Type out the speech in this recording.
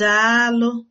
Daalụ